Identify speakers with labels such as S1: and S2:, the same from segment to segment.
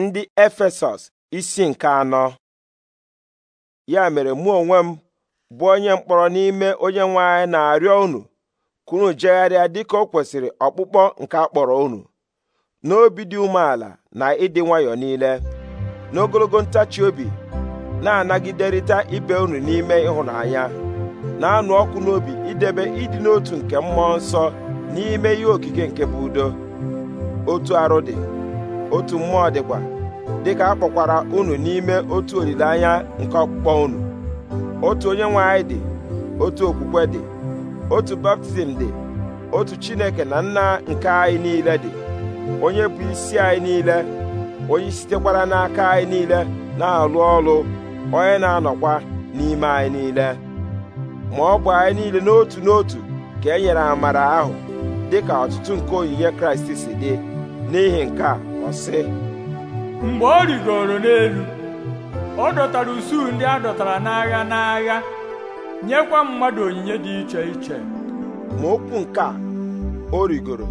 S1: ndị Efesọs isi nke anọ ya mere mụ onwe m bụ onye mkpọrọ n'ime onye nwe anyị na-arịọ unu kunu unu jegharịa dịka o kwesịrị ọkpụkpọ nke a kpọrọ unu n'obi dị umeala na ịdị nwayọọ niile n'ogologo ntachi obi na-anagiderịta ibe unu n'ime ịhụnanya na-anụ ọkụ n'obi idebe ịdị n'otu nke mmụọ nsọ n'ime ihe okike nke bụ udo otu arụ dị otu mmụọ dịkwa dịka a kpọkwara unu n'ime otu olileanya nke ọkpụkpọ unu otu onye nwe anyị dị otu okwukwe dị otu baptizim dị otu chineke na nna nke anyị niile dị onye bụ isi anyị niile onye sitekwara n'aka anyị niile na-alụ ọrụ onye na-anọkwa n'ime anyị niile ma ọ bụ anyị niile n'otu n'otu ka e nyere amara ahụ dị ka ọtụtụ nke onyinye kraịst si dị n'ihi nke a ọ sị mgbe ọ rigoro n'elu ọ dọtara usuu ndị a dọtara n'agha n'agha nyekwa mmadụ onyinye dị iche iche ma okwu nke a o rigoro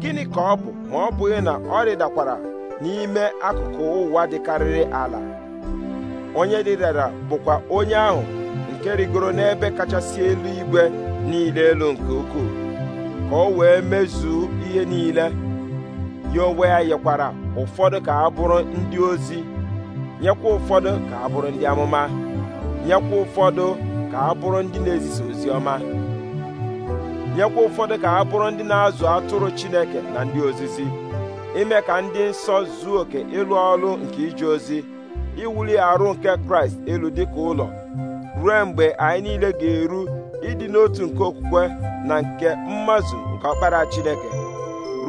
S1: gịnị ka ọ bụ ma ọ bụghị na ọ rịdakwara n'ime akụkụ ụwa dịkarịrị ala onye rịdara bụkwa onye ahụ nke rigoro n'ebe kachasị elu igwe niile elu nke ukwuu ka o wee mezuo ihe niile ya onwe ya yekwara ụfọdụ ka a bụrụ ndị ozi nyekwa ụfọdụ ka ha bụrụ ndị amụma nyekwa ụfọdụ ka a bụrụ ndị na-ezisa ozi ọma nyekwa ụfọdụ ka a bụrụ ndị na-azụ atụrụ Chineke na ndị ozizi ime ka ndị nsọ zuo oke ịlụ ọrụ nke ije ozi iwuli arụ nke Kraịst elu dịka ụlọ ruo mgbe anyị niile ga-eru ịdị n'otu nke okwukwe na nke mmazụ nke ọkpara Chineke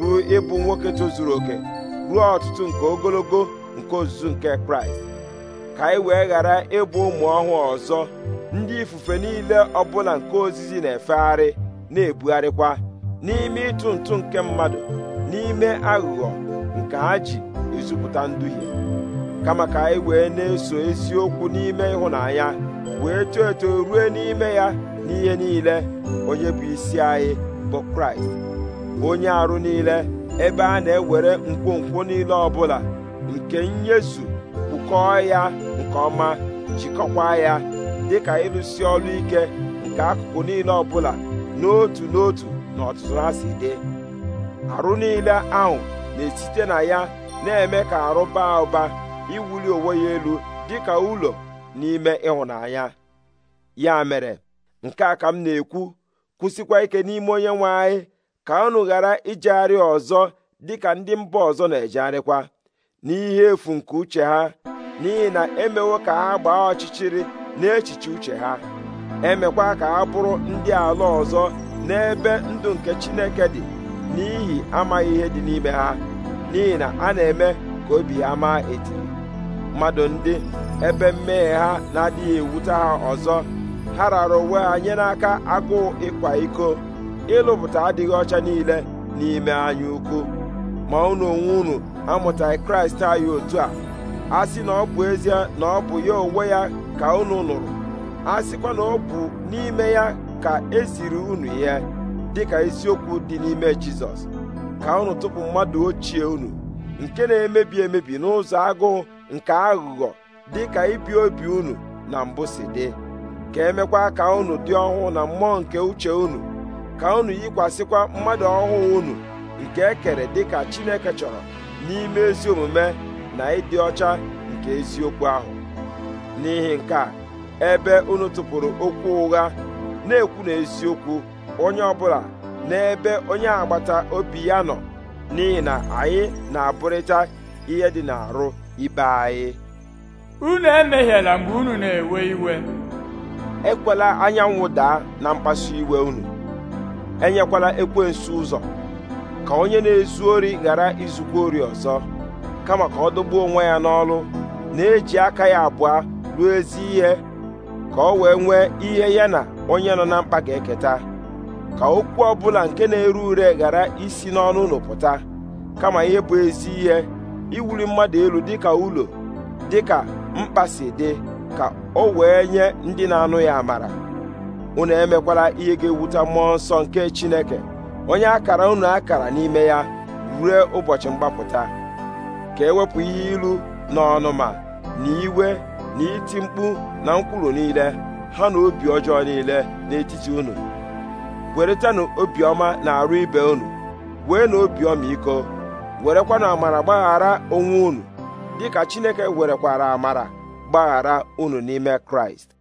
S1: ruo ịbụ nwoke tozuru oke ruo ọtụtụ nke ogologo nke ozuzu nke kraịst ka anyị wee ghara ịbụ ụmụ ọhụụ ọzọ ndị ifufe niile ọbụla nke ozizi na-efegharị na-ebugharịkwa n'ime ịtụ ntụ nke mmadụ n'ime aghụghọ nke ha ji ezupụta nduhie kama ka anyị wee na-eso eziokwu n'ime ịhụnanya wee too eto ruo n'ime ya n'ihe niile onye bụ isi anyị bụ kraịst onye arụ niile ebe a na-ewere nkwonkwo niile ọbụla nke nyezu kpụkọọ ya nke ọma jikọkwa ya dịka ịrụsi ọrụ ike nke akụkụ niile ọbụla n'otu n'otu na ọtụtụ ha si dị arụ niile ahụ na-esite na ya na-eme ka arụ baa ụba iwuli onwe ya elu dịka ụlọ n'ime ịhụnanya ya mere nke a ka m na-ekwu kwụsịkwa ike n'ime onye nwe anyị ka unu ghara ijegharị ọzọ dị ka ndị mba ọzọ na-ejegharịkwa n'ihe efu nke uche ha n'ihi na emewo ka ha gbaa ọchịchịrị n'echiche uche ha emekwa ka ha bụrụ ndị ala ọzọ n'ebe ndụ nke Chineke dị n'ihi amaghị ihe dị n'ime ha n'ihi na a na-eme ka obi ha maa etiri mmadụ ndị ebe mmehie ha na-adịghị ewute ha ọzọ ha rara onwe ha nye n'aka agụụ ịkwa iko ịlụpụta adịghị ọcha niile n'ime anya ukwu ma unu onwe unu amụtaghị kraịst anyị otu a a sị na ọ bụ ezie na ọ bụ ya onwe ya ka unu nụrụ a sịkwa na ọ bụ n'ime ya ka esiri unu dị dịka isiokwu dị n'ime jizọs ka unu tụpụ mmadụ ochie unu nke na-emebi emebi n'ụzọ agụụ nke aghụghọ dịka ibi obi unu na mbụ si dị ka emekwa ka unu dị ọhụụ na mmụọ nke uche unu ka unu yikwasịkwa mmadụ ọhụụ unu nke e kere dịka Chineke chọrọ n'ime ezi omume na ịdị ọcha nke eziokwu ahụ n'ihi nke a ebe unu tụpụrụ okwu ụgha na-ekwu na eziokwu onye ọbụla ebe onye agbata obi ya nọ n'ihi na anyị na-abụrịta ihe dị n'arụ ibe anyị unu emehiela mgbe unu na-ewe iwe ekwela anyanwụ daa na mkpasu iwe unu enyekwala ekwensu ụzọ ka onye na-ezu ori ghara izukwa ori ọzọ kama ka ọ dọgbuo onwe ya n'ọlụ na-eji aka ya abụọ ruo ezi ihe ka ọ wee nwee ihe ya na onye nọ na mkpa ga-eketa ka okwu ọbụla nke na-ere ure ghara isi n'ọnụ ụlọ pụta kama ihe bụ ezi ihe iwuli mmadụ elu dịka ụlọ dịka mkpa si dị ka o wee nye ndị na-anụ ya amara unu emekwala ihe ga-ewute mmụọ nsọ nke chineke onye akara unu akara n'ime ya rue ụbọchị mgbapụta ka ewepụ ihe ilu na ọnụma na iwe na iti mkpu na nkwulu niile ha na obi ọjọọ niile n'etiti unu weretanụ obiọma na arụ ibe unu wee na obiọma iko werekwanụ amara gbaghara onwe unu dịka chineke werekwara amara gbaghara unu n'ime kraịst